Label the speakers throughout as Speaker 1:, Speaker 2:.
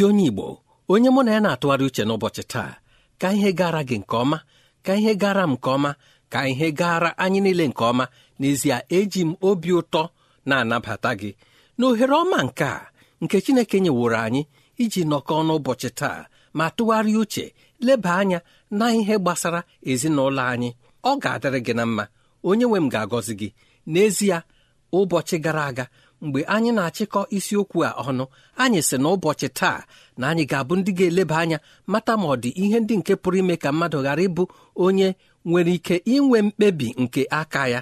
Speaker 1: ezi onye igbo onye mụ na ya na-atụgharị uche n'ụbọchị taa ka ihe gara gị nke ọma ka ihe gara m nke ọma ka ihe gara anyị niile nke ọma n'ezie eji m obi ụtọ na-anabata gị na ohere ọma nke a nke chineke nyeworo anyị iji nọkọọ n'ụbọchị taa ma tụgharịa uche leba anya na ihe gbasara ezinụlọ anyị ọ ga-adịrị gị na mma onye nwe m ga-agọzi gị n'ezie ụbọchị gara aga mgbe anyị na-achịkọ isiokwu a ọnụ anyị sị na ụbọchị taa na anyị ga-abụ ndị ga-eleba anya mata ma ọ dị ihe ndị nke pụrụ ime ka mmadụ ghara ịbụ onye nwere ike inwe mkpebi nke aka ya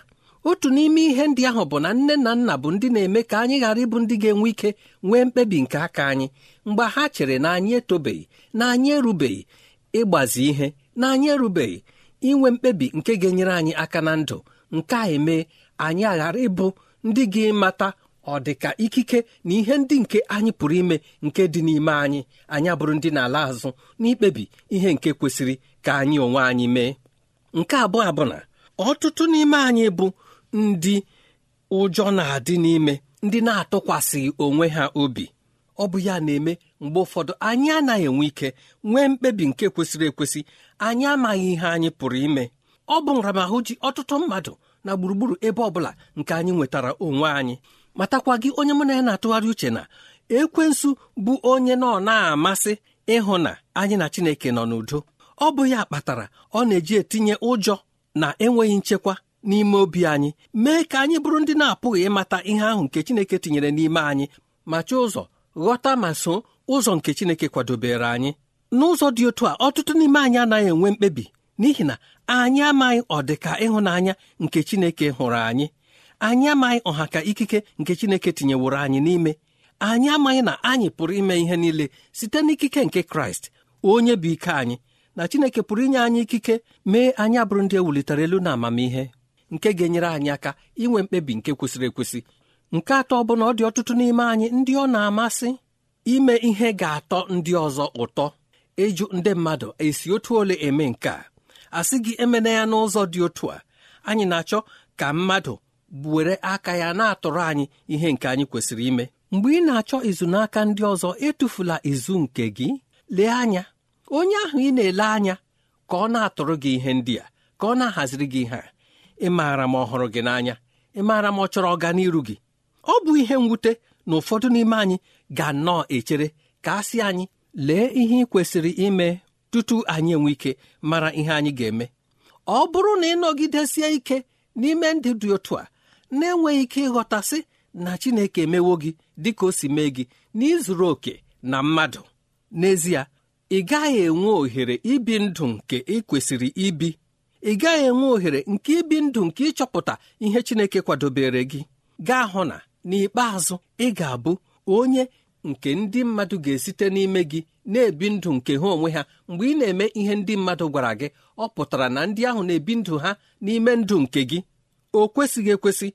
Speaker 1: otu n'ime ihe ndị ahụ bụ na nne na nna bụ ndị na-eme ka anyị ghara ịbụ ndị ga-enwe ike nwee mkpebi nke aka anyị mgbe ha chere na anyị etobeghị na anyị erubeghị ịgbazi ihe na anyị erubeghị inwe mkpebi nke ga-enyere anyị aka na ndụ nke a eme anyị aghara ịbụ ndị ga-emata ọ dị ka ikike na ihe ndị nke anyị pụrụ ime nke dị n'ime anyị anyị abụrụ ndị na-ala azụ n'ikpebi ihe nke kwesịrị ka anyị onwe anyị mee nke abụọ abụ na ọtụtụ n'ime anyị bụ ndị ụjọ na-adị n'ime ndị na-atụkwasịghị onwe ha obi ọ bụ ya na-eme mgbe ụfọdụ anyị anaghị enwe ike nwee mkpebi nke kwesịrị ekwesị anyị amaghị ihe anyị pụrụ ime ọ bụ nramahụ ji ọtụtụ mmadụ na gburugburu ebe ọ bụla nke anyị nwetara onwe anyị matakwa gị onye mụ na ya na-atụgharị uche na ekwensu bụ onye nọ na-amasị ịhụ na anyị na Chineke nọ n'udo ọ bụ ya kpatara ọ na-eji etinye ụjọ na enweghị nchekwa n'ime obi anyị mee ka anyị bụrụ ndị na-apụghị ịmata ihe ahụ nke Chineke tinyere n'ime anyị ma chọọ ụzọ ghọta ma so ụzọ nke Chineke kwadobere anyị n'ụzọ dị otu a ọtụtụ n'ime anyị anaghị enwe mkpebi n'ihi na anyị amaghị ọdịka ịhụnanya nke Chineke hụrụ anyị anyị amaghị ọha ka ikike nke Chineke tinyeworo anyị n'ime anyị amaghị na anyị pụrụ ime ihe niile site n'ikike nke Kraịst onye bụ ike anyị na Chineke pụrụ inye anyị ikike mee anyị abụrụ ndị ewulitere elu na amamihe nke ga-enyere anyị aka inwe mkpebi nke kwesịrị ekwesị nke atọ bụ na ọ dị ọtụtụ n'ime anyị ndị ọ na-amasị ime ihe ga-atọ ndị ọzọ ụtọ ịjụ ndị mmadụ esi otu ole eme nke a asị gị emena ya n'ụzọ dị otu a anyị na-achọ ka mmadụ were aka ya na-atụrụ anyị ihe nke anyị kwesịrị ime mgbe ị na-achọ izu n'aka ndị ọzọ etufula izu nke gị lee anya onye ahụ ị na-ele anya ka ọ na-atụrụ gị ihe ndị a ka ọ na-ahaziri gị ihe a ị maara ma ọhụrụ gị n'anya ị maara ma ọ chọrọ ọganiru gị ọ bụ ihe mwute na ụfọdụ n'ime anyị ga nnọọ echere ka a sị anyị lee ihe ị kwesịrị ime tutu anyị enwe ike mara ihe anyị ga-eme ọ bụrụ na ị nọgidesie ike n'ime ndị dị otu a na-enweghị ike ịghọtasị na Chineke emewo gị dị ka o si mee gị n'ịzụrụ oke na mmadụ n'ezie ị gaghị enwe ohere ibi ndụ nke ị kwesịrị ibi ị gaghị enwe ohere nke ibi ndụ nke ịchọpụta ihe Chineke kwadobere gị gaa hụ na n'ikpeazụ ị ga-abụ onye nke ndị mmadụ ga-esite n'ime gị na-ebi ndụ nke ha onwe ha mgbe ị na-eme ihe ndị mmadụ gwara gị ọ pụtara na ndị ahụ na-ebi ndụ ha n'ime ndụ nke gị o kwesịghị ekwesị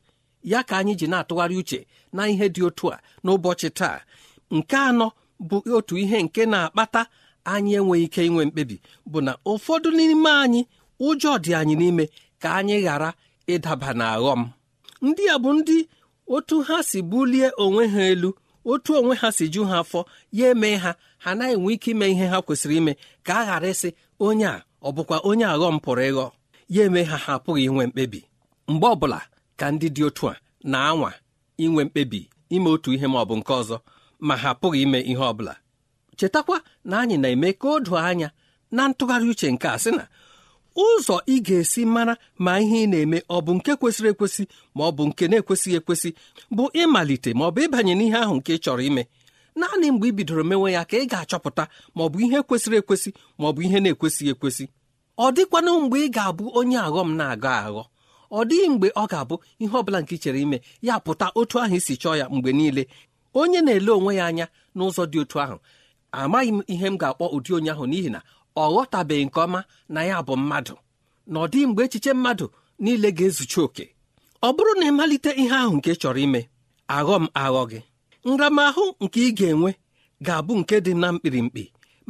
Speaker 1: ya ka anyị ji na-atụgharị uche na ihe dị otu a n'ụbọchị taa nke anọ bụ otu ihe nke na-akpata anyị enweghị ike inwe mkpebi bụ na ụfọdụ n'ime anyị ụjọ dị anyị n'ime ka anyị ghara ịdaba na aghọm ndị a bụ ndị otu ha si bulie onwe ha elu otu onwe ha si ju ha afọ ya eme ha ha naghị enwe ike ime ihe ha kwesịrị ime ka a ghara ịsị onye a ọ bụkwa onye aghọm pụrụ ịghọ ya eme ha ha apụghị inwe mkpebi mgbe ọbụla ka ndị dị otu a na-anwa inwe mkpebi ime otu ihe ma ọ bụ nke ọzọ ma ha pụghị ime ihe ọbụla chetakwa na anyị na-eme ka o doo anya na ntụgharị uche nke a sị na ụzọ ị ga-esi mara ma ihe ị na-eme ọ bụ nke kwesịrị ekwesị ma ọ bụ nke na-ekwesịghị ekwesị bụ ịmalite ma ọ bụ ịbanye n'ihe ahụ nke ị chọrọ ime naanị mgbe ị bidoro mewe ya ka ị ga-achọpụta ma ọ bụ ihe kwesịrị ekwesị ma ọ bụ ihe na-ekwesịghị ekwesị ọ dịkwana mgbe ị ga-abụ onye aghọm na-aghọ aghọ ọ dịghị mgbe ọ ga-abụ ihe ọbụla nke chere ime ya pụta otu ahụ isi chọọ ya mgbe niile onye na-ele onwe ya anya n'ụzọ dị otu ahụ amaghị m ihe m ga-akpọ ụdị onye ahụ n'ihi na ọ ghọtabeghị nke ọma na ya bụ mmadụ na ọ dịghị mgbe echiche mmadụ niile ga-ezuchi oke ọ bụrụ na ịmalite ihe ahụ nke chọrọ ime aghọ m aghọ gị nramahụ nke ị ga-enwe ga-abụ nke dị na mkpirimkpi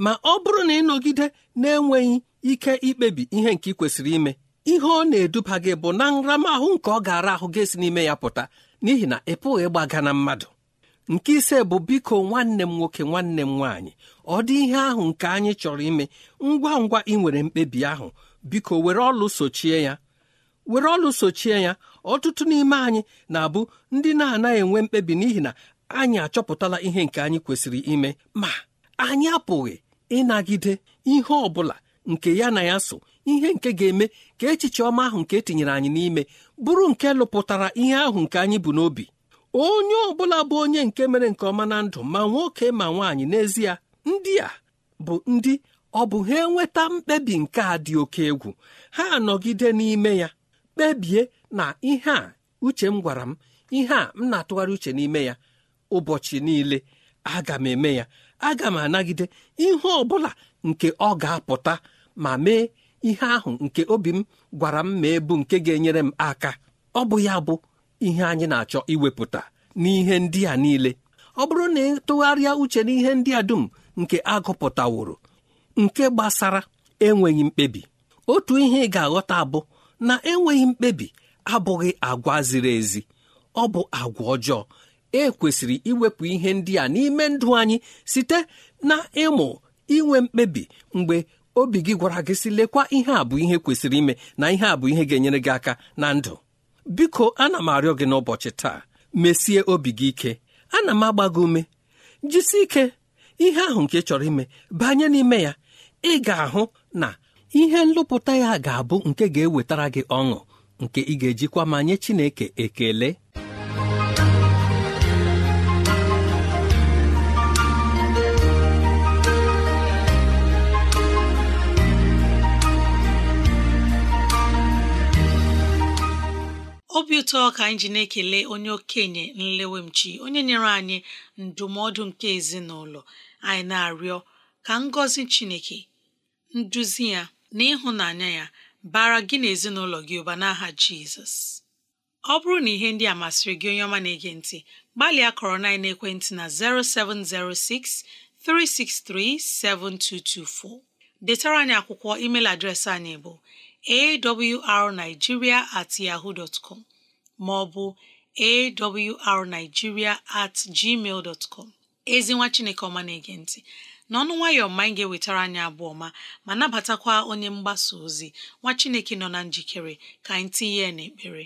Speaker 1: ma ọ bụrụ na ịnọgide na-enweghị ike ikpebi ihe nke ị kwesịrị ime ihe ọ na-eduba gị bụ na nramahụ nke ọ gara ahụ gị esi n'ime ya pụta n'ihi na ị pụghị ịgbaga na mmadụ nke ise bụ biko nwanne m nwoke nwanne m nwaanyị ọ dị ihe ahụ nke anyị chọrọ ime ngwa ngwa ị nwere mkpebi ahụ biko were ọlụ sochie ya were ọlụ sochie ya ọtụtụ n'ime anyị na-abụ ndị na-anaghị enwe mkpebi n'ihi na anyị achọpụtala ihe nke anyị kwesịrị ime ma anyị apụghị ịnagide ihe ọ bụla nke ya na ya so ihe nke ga-eme ka echiche ọma ahụ nke etinyere anyị n'ime bụrụ nke lụpụtara ihe ahụ nke anyị bụ n'obi onye ọ bụla bụ onye nke mere nke ọma na ndụ ma nwoke ma nwaanyị n'ezie ndị a bụ ndị ọ bụ ha enweta mkpebi nke a dị oke egwu ha anọgide n'ime ya kpebie na ihe a uche m gwara m ihe a m na-atụgharị uche n'ime ya ụbọchị niile aga m eme ya aga m anagide ihe ọ bụla nke ọ ga-apụta ma mee ihe ahụ nke obi m gwara m mee bụ nke ga-enyere m aka ọ bụ ya bụ ihe anyị na-achọ iwepụta n'ihe ndị a niile ọ bụrụ na ịtụgharịa uche uche n'ihe ndị a dum nke agụpụtaworo nke gbasara enweghị mkpebi otu ihe ị ga-aghọta bụ na enweghị mkpebi abụghị agwa ziri ezi ọ bụ agwa ọjọọ e kwesịrị iwepụ ihe ndị a n'ime ndụ anyị site na ịmụ inwe mkpebi mgbe obi gị gwara gị si lekwa ihe a bụ ihe kwesịrị ime na ihe a bụ ihe ga-enyere gị aka na ndụ biko ana m arịọ gị n'ụbọchị taa mesie obi gị ike ana m agba gị ume jisi ike ihe ahụ nke chọrọ ime banye n'ime ya ị ga-ahụ na ihe nlụpụta ya ga-abụ nke ga-ewetara gị ọṅụ nke ị ga-ejikwa ma nye Chineke ekele
Speaker 2: obi ụtọ ka anyị ji na-ekele onye okenye nlewemchi onye nyere anyị ndụmọdụ nke ezinụlọ anyị na-arịọ ka ngọzi Chineke nduzi ya na ịhụnanya ya bara gị na ezinụlọ gị ụba n'aha Jizọs ọ bụrụ na ihe ndị a masịrị gị onye ọma na-ege ntị gbalịa kọrọ na ekwentị na 0706 363 7224 detara anyị akwụkwọ email adreesị anyị bụ awrnigeria at yahoo dot com maọbụ awrnigeria at gmail dot com ezi nwa chineke ọma na-ege ntị n'ọnụ nwayọọ mma anyị ga-ewetara anyị abụọ ọma ma nabatakwa onye mgbasa ozi nwa chineke nọ na njikere ka anyị tinye ya n'ekpere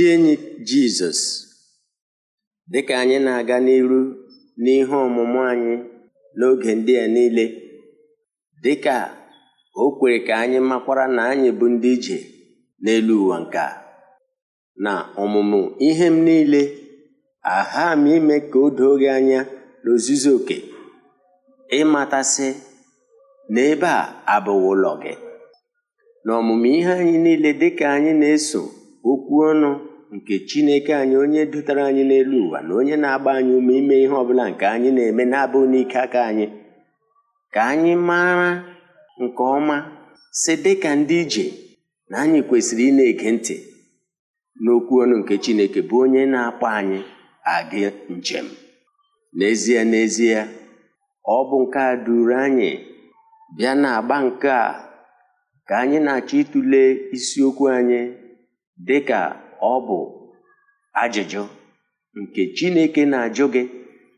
Speaker 3: ndị enyi Jizọs dịka anyị na-aga n'iru n'ihe ọmụmụ anyị n'oge ndị a niile dịka o kwere ka anyị makwara na anyị bụ ndị ije n'elu ụwa nke na ọmụmụ ihe m niile aha m ime ka o doo gị anya n'ozuzu oke ịmatasị na ebe a abụghị ụlọ gị na ọmụmụ ihe anyị niile dịka anyị na-eso okwu ọnụ nke chineke anyị onye dutere anyị n'elu ụwa na onye na-agba anyị ume ime ihe ọbụla nke anyị na-eme na abụ n'ike aka anyị ka anyị mara nke ọma si dịka ndị ije na anyị kwesịrị ị na-ege ntị n'okwu ọnụ nke chineke bụ onye na-akpọ anyị agị njem n'ezie n'ezie ọ bụ nke a duru anyị bịa na-agba nke a ka anyị na-achọ ịtụle isiokwu anyị dịka ọ bụ ajụjụ nke chineke na-ajụ gị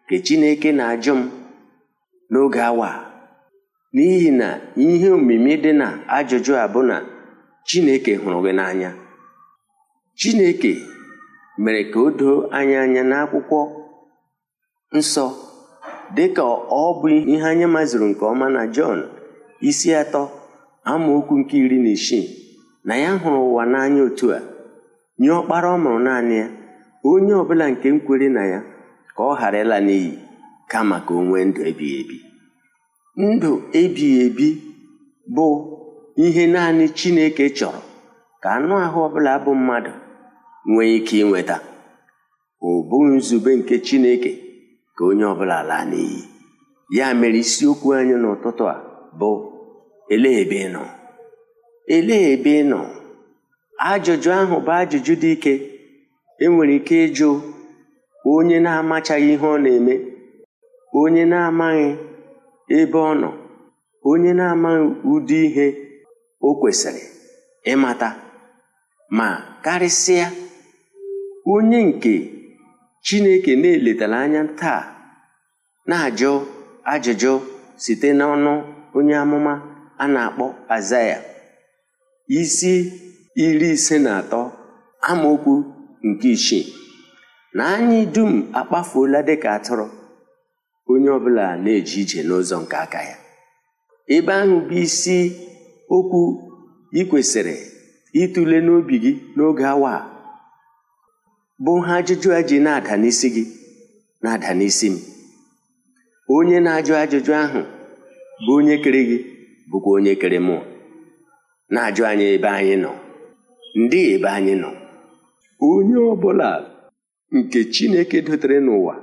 Speaker 3: nke chineke na-ajụ m n'oge awa n'ihi na ihe omimi dị na ajụjụ a bụ na chineke hụrụ gị n'anya chineke mere ka o doo anya anya n'akwụkwọ nsọ ka ọ bụ ihe anya maziri nke ọma na jọn isi atọ amaokwu nke iri na isii na ya hụrụ ụwa n'anya otu a nye ọkpara ọ naanị ya onye ọbụla nke nkwere na ya ka ọ ghara ịla n'iyi ka maka onwe ndụ ebighị ebi ndụ ebighị ebi bụ ihe naanị chineke chọrọ ka anụ ahụ ọbụla bụ mmadụ nwee ike ịnweta ọ bụghị nzube nke chineke ka onye ọbụla laa n'iyi ya mere isiokwu anyị n'ụtụtụ a bụ elee ebe ị nọ elee ebe ị nọ ajụjụ ahụ bụ ajụjụ dị ike enwere ike ịjụ onye na-amachaghị ihe ọ na-eme onye na-amaghị ebe ọ nọ onye na-amaghị ụdị ihe o kwesịrị ịmata ma karịsịa onye nke chineke na-eletara anya taa na-ajụ ajụjụ site n'ọnụ onye amụma a na-akpọ azaya isi iri ise na atọ amaokwu nke isii na anyị dum akpafuola dịka atụrụ onye ọbụla na-eje ije n'ụzọ nke aka ya ebe ahụ bụ isi okwu ị kwesịrị ịtụle n'obi gị n'oge awa a bụ ha ajụjụ a ji na-ada n'isi gị na-ada n'isi m onye na-ajụ ajụjụ ahụ bụ onye kere gị bụkwa onye kere mụ na-ajụ anyị ebe anyị nọ ndị ebe anyị nọ onye ọ bụla nke Chineke dotere n'ụwa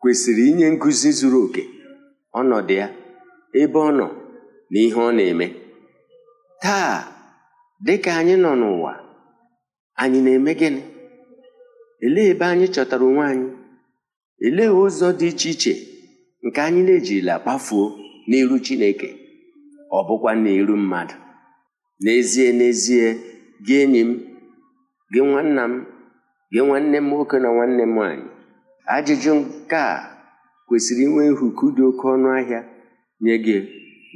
Speaker 3: kwesịrị inye nkụzi zuru oke ọnọdụ ya ebe ọ nọ na ihe ọ na-eme taa dị ka anyị nọ n'ụwa anyị na-eme gịnị elee ebe anyị chọtara onwe anyị elee ụzọ dị iche iche nke anyị na-ejirila kpafuo n'iru Chineke ọ bụkwa n'iru mmadụ n'ezie n'ezie gị enyi m gị nwanna m gị nwanne m nwoke na nwanne m nwanyị ajụjụ nke a kwesịrị inwe nhuku dị oke ọnụ ahịa nye gị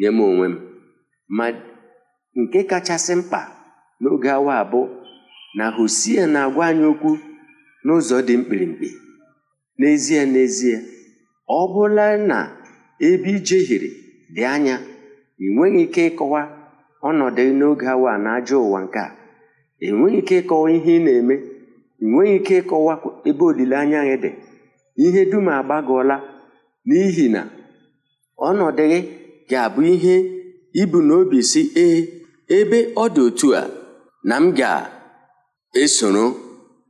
Speaker 3: nye m onwe m ma nke kachasị mkpa n'oge awa abụ na hosie na-agwa anyị okwu n'ụzọ dị mkpirikpi n'ezie n'ezie ọ bụla na ebe ijehiere dị anya ị nweghị ike ịkọwa ọnọdụ n'oge awa na ajọ ụwa nke a enweghị ike ịkọwa ihe ị na-eme enweghị ike ịkọwa ebe olileanya gị dị ihe dum agbagọọla n'ihi na ọnọdụ gị ga-abụ ihe ibu n'obi si ee ebe ọ dị otu a na m ga-esoro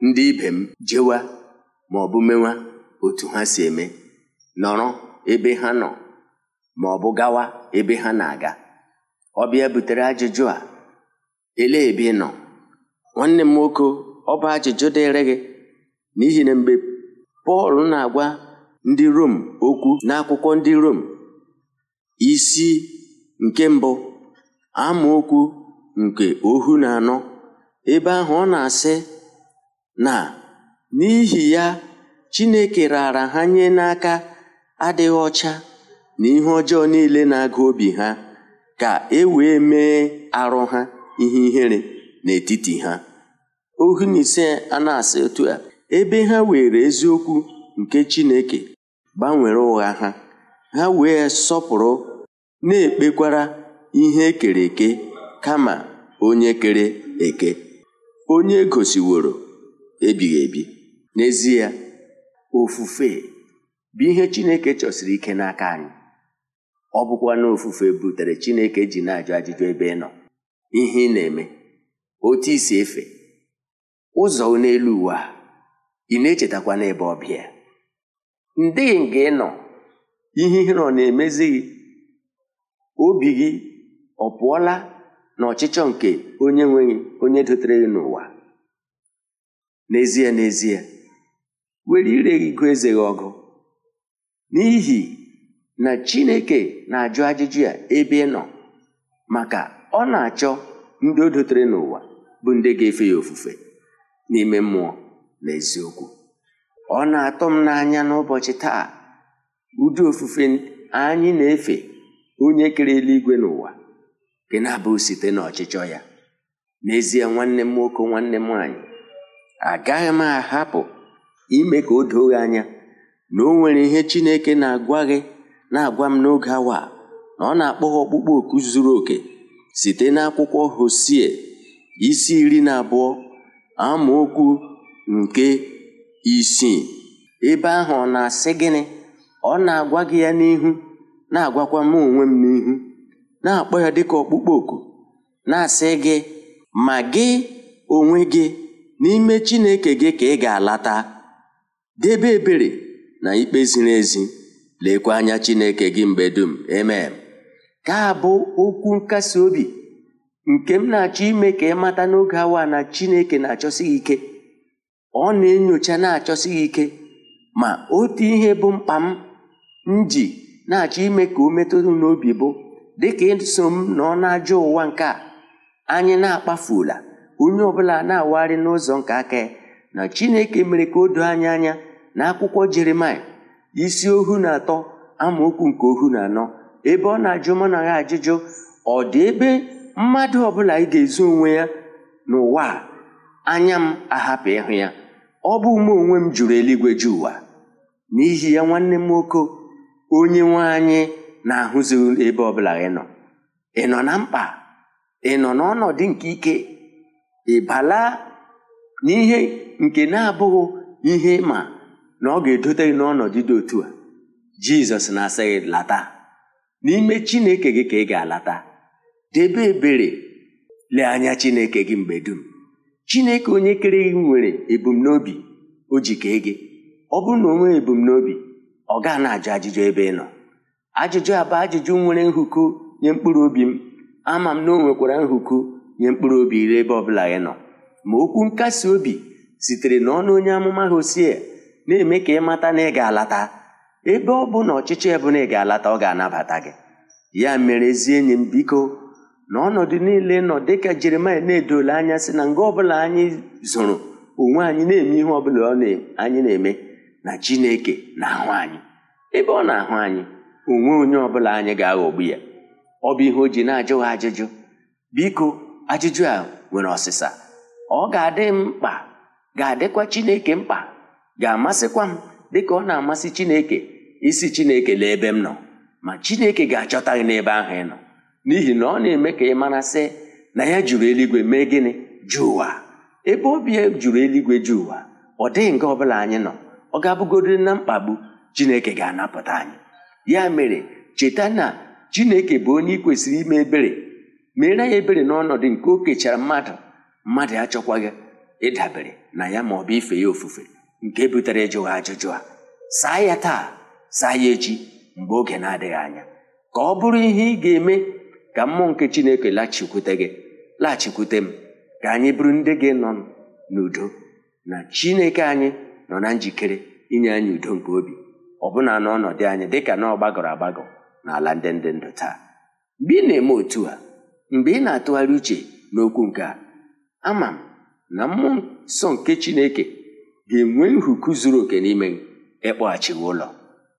Speaker 3: ndị ibe m jewa ma ọ bụ mewa otu ha si eme nọrọ ebe ha nọ ma ọ bụ gawa ebe ha na-aga ọbịa butere ajụjụ a elee ebe ị nọ nwanne m nwoke ọ bụ ajụjụ dịrị gị n'ihi na mgbe pọl na-agwa ndị rom okwu n'akwụkwọ ndị rom isi nke mbụ amaokwu nke ohu na anọ ebe ahụ ọ na-asị na n'ihi ya chineke raara ha nye n'aka adịghị ọcha na ihe ọjọọ niile na aga obi ha ka e wee mee arụ ha ihe ihere n'etiti ha ohu na ise a na-asị otu a ebe ha were eziokwu nke Chineke gbanwere ụgha ha ha wee sọpụrụ na-ekpekwara ihe ekere eke kama onye kere eke onye gosiworo ebighị ebi n'ezie ofufe bụ ihe Chineke chọsiri ike n'aka anyị ọ bụkwa na ofufe butere Chineke ji na-ajụ ajụjụ ebe ị nọ ihe ị na-eme otu isi efe ụzọ n'elu ụwa ị na-echetakwa n'ebe ọbịa ndị nga ịnọ ịnọ ihe ihere ọ na-emezighị obi gị ọ pụọla na ọchịchọ nke onye nweghị onye dotere gị n'ụwa n'ezie n'ezie were ire gị eze gị ọgụ n'ihi na chineke na-ajụ ajụjụ ya ebe ị nọ maka ọ na-achọ ndị o dotere n'ụwa bụ ndị ga-efe ya ofufe n'ime mmụọ na eziokwu ọ na-atọ m n'anya n'ụbọchị taa ụdị ofufe anyị na-efe onye kere eluigwe n'ụwa gị na-abụ site n'ọchịchọ ya n'ezie nwanne m nwoke nwanne m nwanyị agaghị m ahapụ ime ka o doo anya na o nwere ihe Chineke na-agwa na-agwa m n'oge awa na ọ na-akpọ ọkpụkpọ oku zuru oke site n'akwụkwọ Hosie isi iri na abụọ amaokwu nke isii ebe ahụ ọ na-asị gịnị ọ na-agwa gị ya n'ihu na-agwakwa m onwe m n'ihu na-akpọ ya dịka ọkpụkpọ oku na-asị gị ma gị onwe gị n'ime Chineke gị ka ị ga-alata debe ebere na ikpe ziri ezi lekwa anya Chineke gị mgbe dum emem ka abụ okwu nkasi obi nke m na-achọ ime ka ị mata n'oge awa na chineke na-achọsi gị ike ọ na-enyocha na-achọsi gị ike ma otu ihe bụ mkpa m m ji na-achọ ime ka o metụrụ n'obi bụ dịka ịso m na ajọ ụwa nke a anyị na-akpafuola onye ọbụla na-awagharị n'ụzọ nke aka ya na chineke mere ka o doo anya anya na akwụkwọ jeremaya isi ohu na atọ amaokwu nke ohu na anọ ebe ọ na-ajụ mụ na ya ajụjụ ọ dị ebe mmadụ ọbụla ị ga ezu onwe ya n'ụwa a anya m ahapụ ịhụ ya ọ bụ ume onwe m jụrụ eluigwe ji ụwa n'ihi ya nwanne m nwoke onye nwe anyị na-ahụzi ebe ọbụla ị nọ ị nọ na mkpa ị nọ n'ọnọdụ nke ike ị bala n'ihe nke na-abụghị ihe ma na ọ ga-edote gị n'ọnọdụ dị otu a jizọs na-asị gị lata n'ime chineke gị ka ị ga-alata debe ebere lee anya chineke gị mgbe dum chineke onye kere gị nwere ebumnobi o ji kee gị ọ bụrụ na onwe ebumnobi ọ gaa na-ajụ ajụjụ ebe ị nọ ajụjụ abụ ajụjụ nwere nhụkụ nye mkpụrụ obi m ama m na o nwekwara nhụkụ nye mkpụrụ obi ire ebe ọbụla ị nọ ma okwu nkasi obi sitere n'ọnụ onye amụma hosie na-eme ka ị mata na ị ga-alata ebe ọ bụ na ọchịchị ebụla ị ga-alata ọ ga-anabata gị ya mere ezi enyi m biko na ọnọdụ niile nọ dịka jeremaya na edole anya si na nga ọbụla anyị zụrụ onwe anyị na-eme ihe ọbụla anyị na-eme na chineke na-ahụ anyị ebe ọ na-ahụ anyị onwe onye ọbụla anyị ga-aghọgbu ya ọ bụ ihe o ji na-ajụ ajụjụ biko ajụjụ a nwere ọsịsa ọ ga-adị mkpa ga-adịkwa chineke mkpa ga-amasịkwa m dịka ọ na-amasị chineke isi chineke lee ebe m nọ ma chineke ga-achọta gị n'ebe ahụ ị nọ n'ihi na ọ na-eme ka ị mara sị na ya jụrụ eluigwe mee gịnị jụ ụwa ebe obi jụrụ eluigwe jụ ụwa ọ dịghị nga ọ bụla anyị nọ ọ ga-abụgodịrị na mkpagbu chineke ga-anapụta anyị ya mere cheta na chineke bụ onye ị kwesịrị ime ebere mere ya ebere n'ọnọdụ nke o kechara mmadụ mmadụ achọkwaghị ịdabere na ya ma ọ bụ ife ya ofufe nke butere ịjụghị ajụjụ a saa ya taa saa ya echi mgbe oge na-adịghị anya ka ọ bụrụ ihe ị ga-eme ka mmụọ nke chineke lachikwute gị laghachikwute m ka anyị bụrụ ndị gị nọ n'udo na chineke anyị nọ na njikere inye anyị udo nke obi ọbụna n'ọnọdụ anyị dịka na ọ gbagọrọ agbagọ n'ala ndị ndị ndụ taa mgbe ị na-eme otu a mgbe ị na-atụgharị uche n'okwu nke a ama m na mmụọ nsọ nke chineke ga-enwe nhuku zuru oke n'ime ịkpọghachighị ụlọ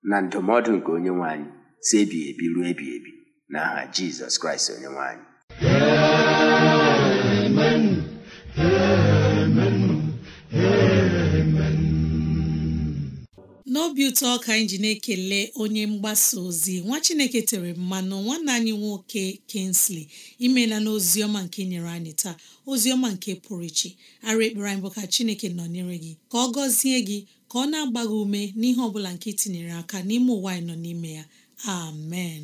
Speaker 3: na ndụmọdụ nke onye nwe anyị si ebi ebi ruo ebi ebi n'aha jizọs kraịst onye nwanyị
Speaker 2: n'obi ụtọ ka anyị ji na-ekele onye mgbasa ozi nwa chineke tere mmanụ nwanne anyị nwoke Kingsley imela na oziọma nke nyere anyị taa oziọma nke pụrụ iche ara ekpere anyị bụ ka chineke nọnyere gị ka ọ gọzie gị ka ọ na-agba ume n'ihe ọ bụla nke itinyere aka n'ime ụwa anyị nọ n'ime ya amen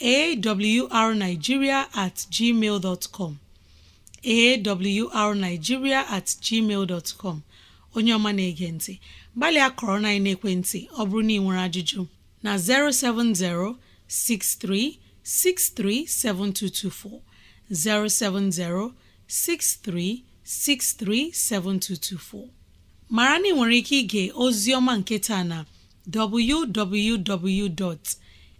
Speaker 2: awrnigeria at gmail awrnigeria at gmail dot onye ọma na-ege ntị gbalịa kọrọ na ekwentị ọ bụrụ na ị nwere ajụjụ na 070 6363 7224 070 6363 7224 mara na ị nwere ike ịga ozi ọma nke taa na www.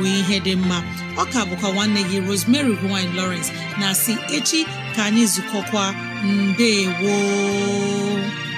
Speaker 2: wee ihe dị mma ọ ka bụkwa nwanne gị Rosemary gine Lawrence na si echi ka anyị zukọkwa mbe gboo